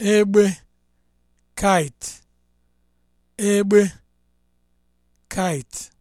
egbe kite egbe kite